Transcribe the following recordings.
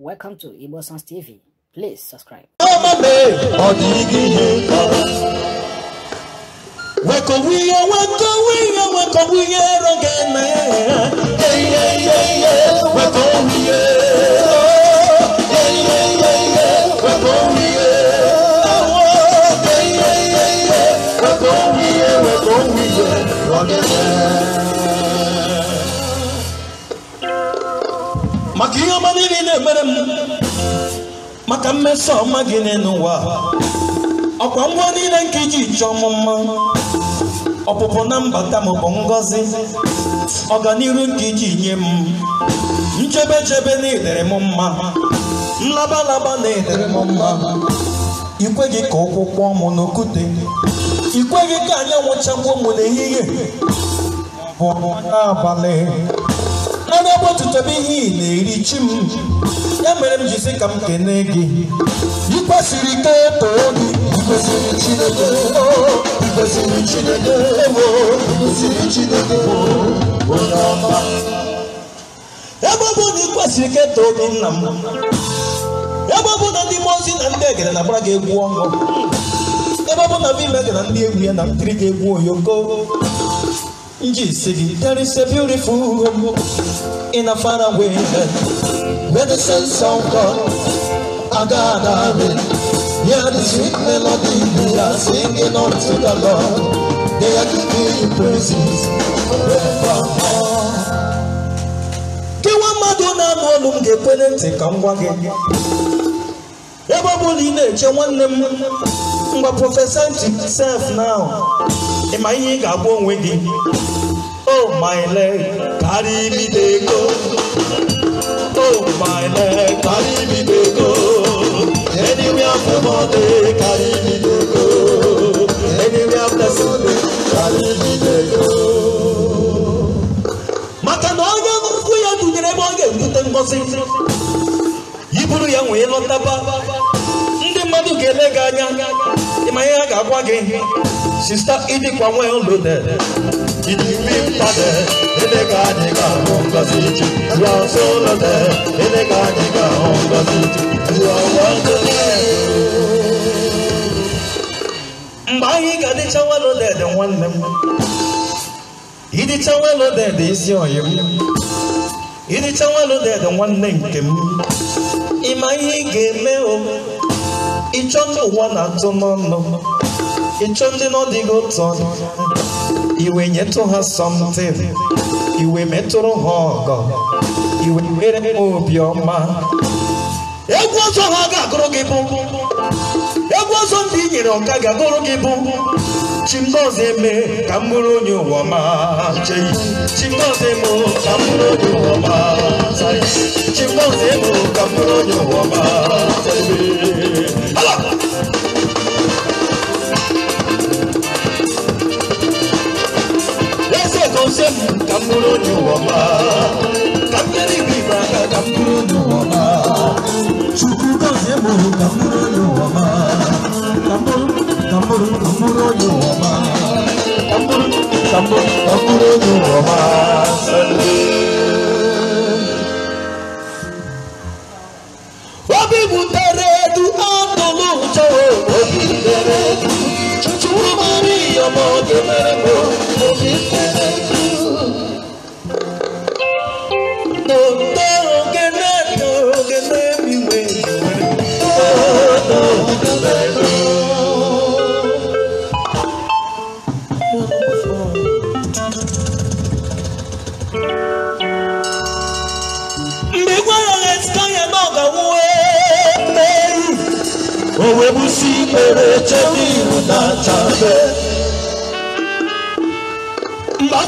Welcome to Ibo Sons TV. Please subscribe. Wakowie, a k o w e w k o w i n y o w e k o w i y e rogene. Makia manini ne m e m Maka mmeso magine n'ụwa. k w a ngwa n i i l n k iji c o ọ ọ m mma. ọpụpụ na mbata m bụ ngọzi Ọganihu nke iji nye m nchebe chebe na edere m mma nlaba laba na edere m mma ikweghị ka ụkwụ kpọọ m n'okwute ikweghị ka anyanwụ chagbuo m n'ehihie bụ n'abalị anya ihe ị na-eri chi m ya mere m ji sị ka m kene gị ị kwesịrị ike eto gị ikwesịrị Chineke ikwesịrị Chineke ikwesịrị Chineke onye ọma ebe ọ na ị kwesịrị ike too gị nna m ebe ọ na ndị mmụọ ozi na ndị egere na-agbara gị egwu ọṅụ ebe ọ na na mmemme na ndị egwu ya na mpiri gị egwu oyoko nji si gị there is a beautiful home in a faraway With the sense of God, I got me. Hear the sweet melody they are singing unto the Lord. They are giving you praises forevermore. Gị nwa mmadụ na-anụ olu m ga-ekwere ntị ka m gwa gị. Ebe ọ ị na-eche nwanne m mgbe prọfesa self now ị ma ihe ị ga-agwa onwe gị. Oh my leg, carry me dey go oh my leg, carry me to go. Anywhere for Monday, carry me to go. Anywhere after Sunday, carry me to go. Maka na onye nkwụ ya dunyere ebe ọ ga-ebute ngọzi. Yi bụrụ ya nwee lọtaba. Ndị mmadụ ga-ele gị anya. Ịma ihe a ga-agwa gị. Sista 지지민파데 엘레가니가 온가지지 라솔라데 엘레가니가 온가지지 라완데 mgbe anyị ga dịcha weloded nwanne m ịdịcha weloded isi oyi m ịdịcha weloded nwanne nke m ịma ihe ị ga-eme o ịchọ ndị ụwa na-atụ n'ọnụ ịchọ ndị nọ dịghị otu ọnụ iwe nyetụ ha something iwe metụrụ ha ọgọ iwe mere m obiọma egwu ọzọ ha ga-agụrụ gị bụ egwu ọzọ ndị i nyere ọka ga-agụrụ gị bụ chimọzọ eme ka m bụrụ onye ụwa ma chimọzọ eme ka m bụrụ onye ma chimọzọ eme ka m bụrụ onye ụwa ma love. He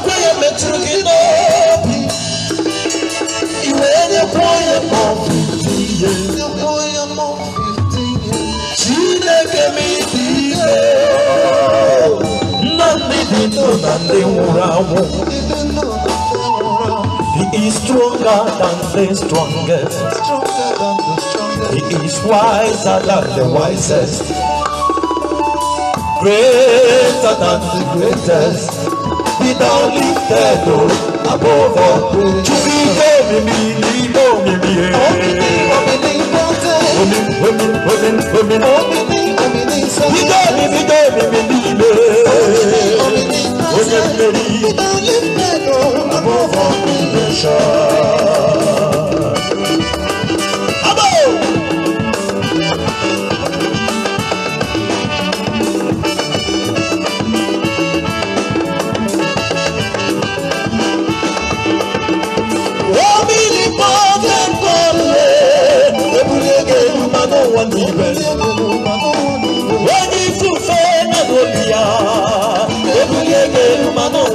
is stronger than the strongest. He is wiser than the wisest. Greater than the greatest. hospital lifted o oh, above all. Jubile mi mi lilo mi mi.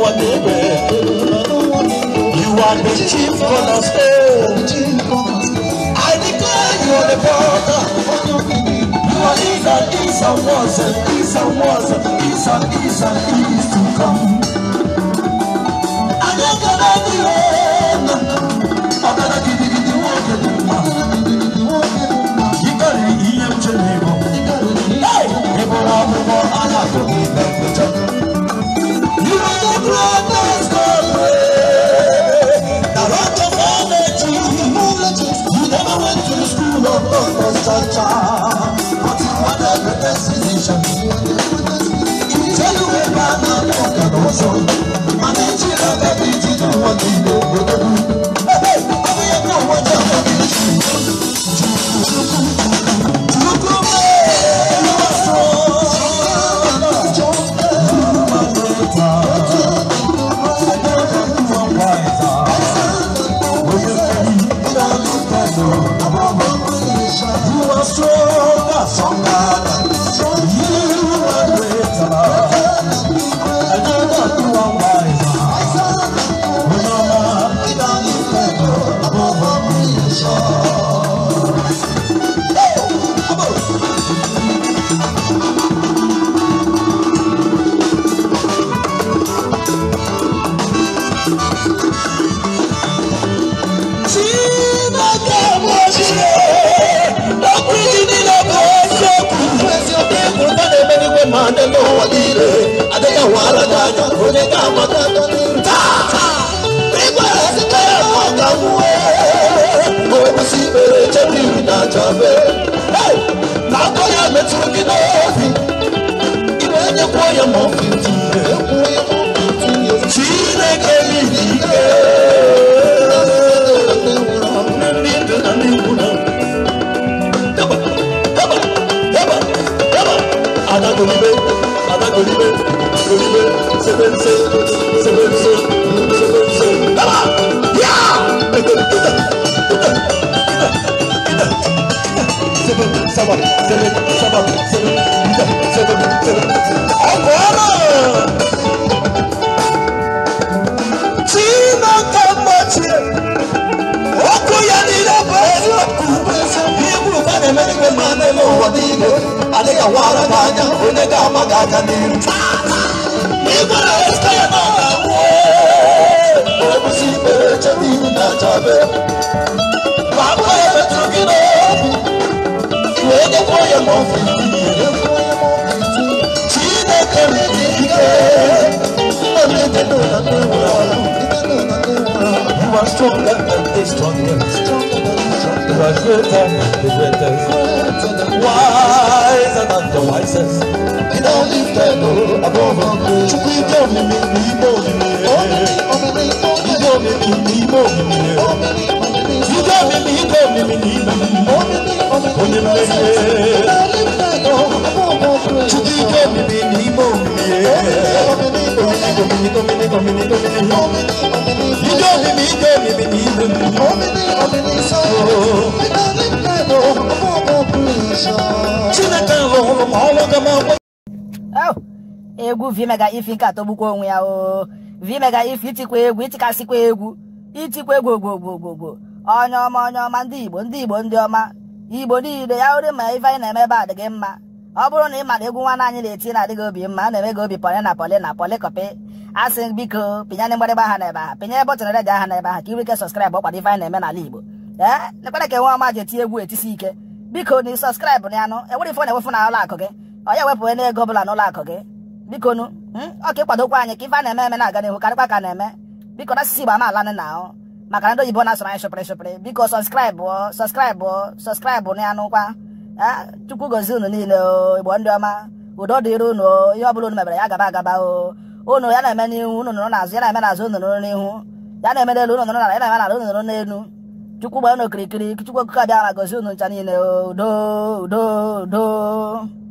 our neighbor. You are the chief cornerstone. I declare you are the father. You are is and is and was and is and was and is and is and is to come. corazón. adéwé máa dé lọ́wọ́ líle adéyàwó aládájọ́ òní ká máa dá lórí. káàká nígbà rẹ̀ sí pé ẹ̀kọ́ kan wú ẹ́ mo wí sí eré jẹ́bi ìrìnàjò abẹ́. lákòóyà mi tún kí lóòfin ìwé ẹ̀jẹ̀ kó yẹ mọ́ fìdí. seven, seven, seven, seven, seven, seven. Ọ̀pọ̀ ọ̀rọ̀ tí iná ká mọ̀ tiẹ̀, ọkọ̀ yẹn Ibu bẹ́ẹ̀ mẹ́rin máa ń lọ wọ̀ ní ilé, àdéhàwọ̀ ara bá yá, Ibu rẹ̀ ń sẹ́yìn náà wọ̀ ọ́, I'm stronger than this, stronger, stronger than this, stronger. You are the than wiser than the wisest. And all is dead above all. You will me, me, me, more than me. You me, me, me, me, more than me. You tell me, me, you tell me, me, me, more than me. Only me, you tell me, me, more than me. Only me, me, tell me, me, more than me. egwu vimega ifi nke atọgbukwa onwe ya o vimega ifi itikwa egwu itikasịkwa egwu itikwa egwu ogbogbogbogbogbo onye ọma onye ọma ndị igbo ndị igbo ndị ọma igbo niile ya ori ma ife anyị na-eme ebe adịghị mma ọ bụrụ na ị mara egwu nwanne anyị na-eti na-adịghị obi mma a na-eme gị obi pọlị na pọlị na pọlị kọpị asị biko pịnyana mgbịrịgba aha n'ebe aha pịnyere bọtụn redio aha n'ebe aha ka ị nwee ike sọskraịbụ ọkwado ife anyị na-eme n'ala Igbo ee nekwere ka nwa ọma ji eti egwu etisi ike biko na sọskraịbụ na anụ enwere ife ọ na-ewefu na ụlọ gị onye ya ewepụ ego ọbụla n'ụlọ akụ gị biko nu hmm? ọka ka ịkwadokwa anyị ka ife a na-eme eme na-aga n'ihu karịkwa ka na-eme biko na asịsị Igbo amaala nị na ahụ maka na ndị oyibo na-asụrụ anyị shụpịrị shụpịrị biko sọskraịbụ sọskraịbụ sọskraịbụ na anụ kwa chukwu gozi unu niile o Igbo ndị ọma udo dịrị unu ihe ọ bụla unu mebere ya gaba agaba o ô nó này mày níu nó nó là sẽ này mày là sơn nó níu giá này mày đây luôn nó là đấy này mày là luôn nó níu chú cú bé nó kiri kiri chú cú cả nhà là cái sơn nó chani nó đô đô đô